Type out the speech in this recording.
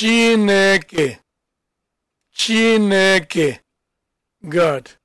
Chineke. Chineke. Good.